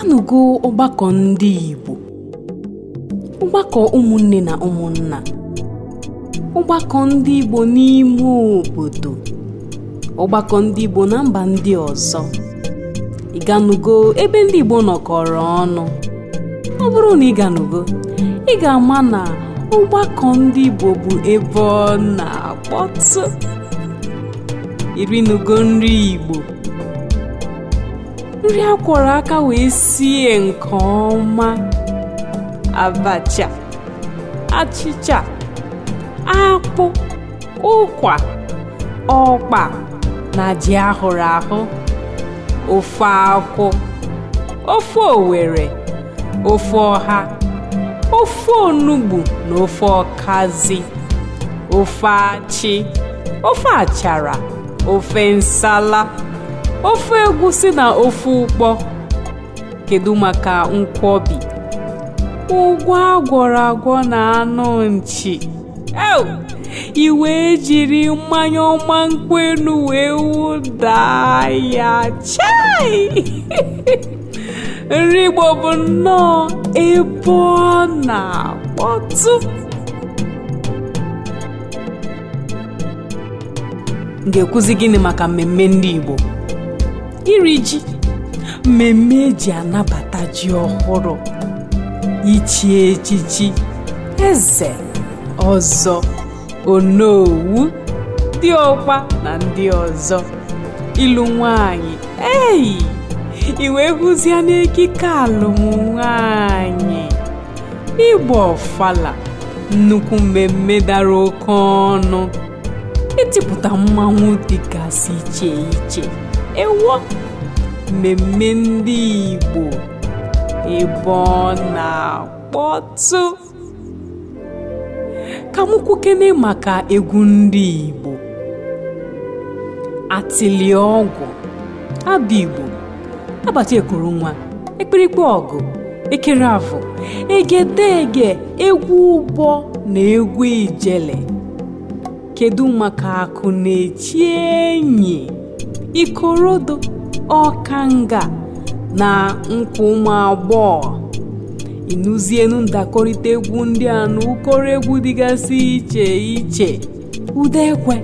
abịanụgo ọgbakọ ndị Igbo ọgbakọ ụmụnne na ụmụnna ọgbakọ ndị Igbo n'ime obodo ọgbakọ ndị Igbo na mba ndị ọzọ ị ebe ndị Igbo nọkọrọ ọnụ ọ bụrụ na ị ị ga-ama na ọgbakọ ndị Igbo bụ ebe ọ na-akpọtụ irinugo nri Igbo nri akwọrọ aka wee sie nke ọma abacha achịcha akpụ ụkwa ọkpa na ji ahụrụ ahụ ofe akwụ ofe owere ofe ọha ofe onugbu na ofe ọkazi ofe achị ofe achara ofe nsala ofe egwusi na ofe ụkpọ kedu maka nkwobi ụgwọ agwọrọ agwọ na anụ nchi i wee jiri mmanya ọma nkwenu wee wụda ya chai nri Igbo bụ nnọọ ebe ọ na-akpọtụ m ga-ekwuzi gịnị maka mmemme ndị Igbo iri e ji mmemme eji anabata ji ọhụrụ ichi echichi eze ọzọ onowu ọkwa na ndị ọzọ ịlụ nwanyị eyi iwe hụzie n'ekike nwanyị ịgba ọfala nnukwu mmemme dara oke ọnụ ịtịpụta e mmanwụ dịgasị iche iche ewo mmemme ndị Igbo ebe na-akpọtụ ka m kwukene maka egwu ndị Igbo atịlị ọgwụ abụ Igbo agbata ekuru nwa ekpirikpe ọgụ ekere afọ egedege egwu ụbọ na egwu ijele kedu maka akụ na-echi enyi Ikorodu, Ọkanga na nkwụ ụmụ agbọghọ ịnụzienu ndakọrịta egwu ndị a na ụkọrọ egwu dịgasị iche iche ụda ekwe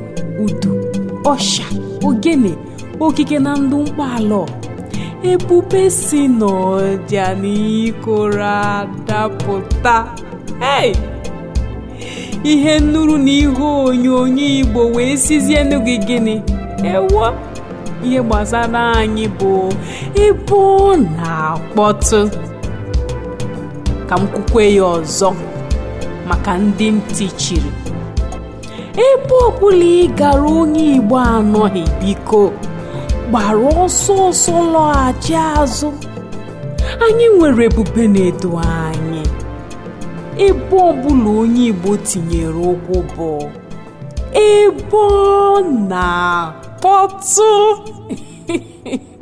udu ọsha ogene okike na ndụ ala. ebube si n'ọja na ikoro adapụta ihe nnuru na ihe onyonyo igbo wee sizie n'oge gịnị ewo ihe gbasara anyị bụ ịbụ na-akpọtụ ka m kwukwe ya ọzọ maka ndị ntị chiri ebe ọbụla ị gara onye Igbo anọghị biko gbara ọsọ ọsọ lọghachi azụ anyị nwere ebube na-edo anyị ebe ọbụla onye Igbo tinyere ụkwụ bụ ebe ọ na 我操！嘿嘿嘿。